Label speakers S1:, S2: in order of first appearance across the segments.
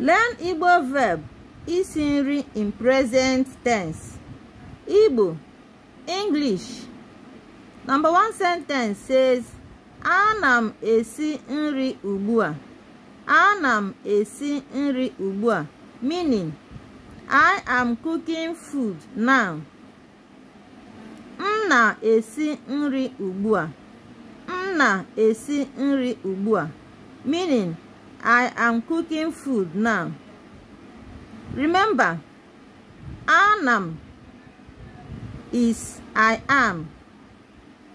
S1: Learn Igbo verb isi nri in present tense. Igbo, English. 1. one sentence says, Ana m esi nri ugbu a. Ana m esi nri ugbu a. Meaning, I am cooking food now. M na-esi nri ugbu M na-esi nri ugbu a. Meaning, I am cooking food now. Remember, anam is I am.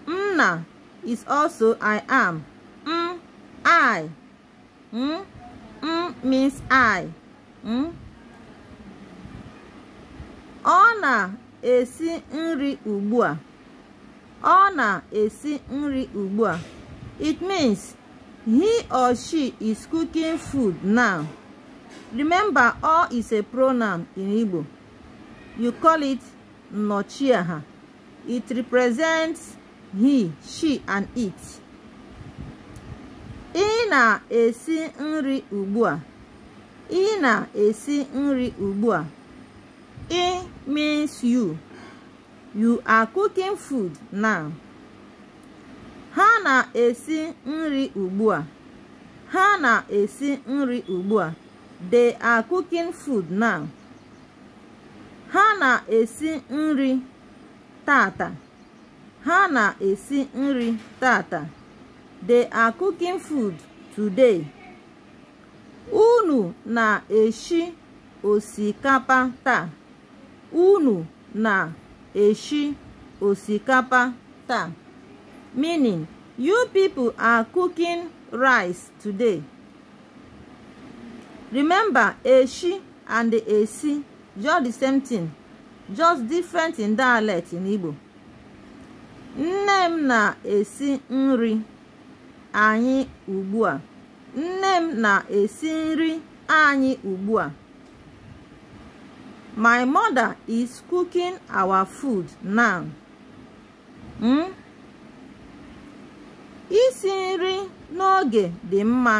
S1: Mna is also I am. M I. M, M means I. M. Ọ na-esi nri ugbu a. Ọ na-esi nri ugbu a. It means He or she is cooking food now. Remember, or is a pronoun in Igbo. You call it Nochiaha. It represents he, she, and it. Ị na-esi nri ugbu a. Ị na-esi nri ugbu a. Ị means you. You are cooking food now. na-esi nri ugbu a ha na-esi nri ugbu a they are cooking food now ha na-esi nri tata ha na-esi nri tata they are cooking food today unu na-eshi osikapa taa unu na-eshi osikapa taa meaning You people are cooking rice today. Remember, eshi and the esi, just the same thing, just different in dialect in Igbo. Nne m na-esi nri anyị ugbu a. Nne m na-esi nri anyị ugbu a. My mother is cooking our food now. Mm? isi nri n'oge dị mma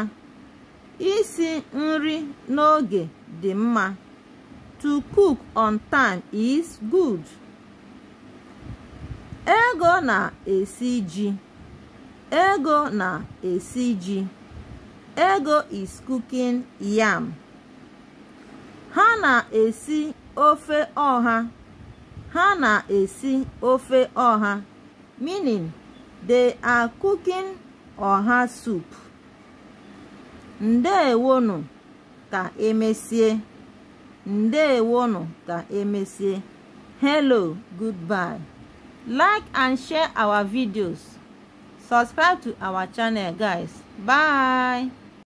S1: isi nri n'oge dị mma to cook on time is good ego na-esi ji ego na-esi ji ego is cooking yam ha na-esi ofe ọha ha na-esi ofe ọha meaning they are cooking ọha sup ndewonu ka emesie ndewonu ka emesie hello goodbye like and share our videos subscribe to our channel guys bye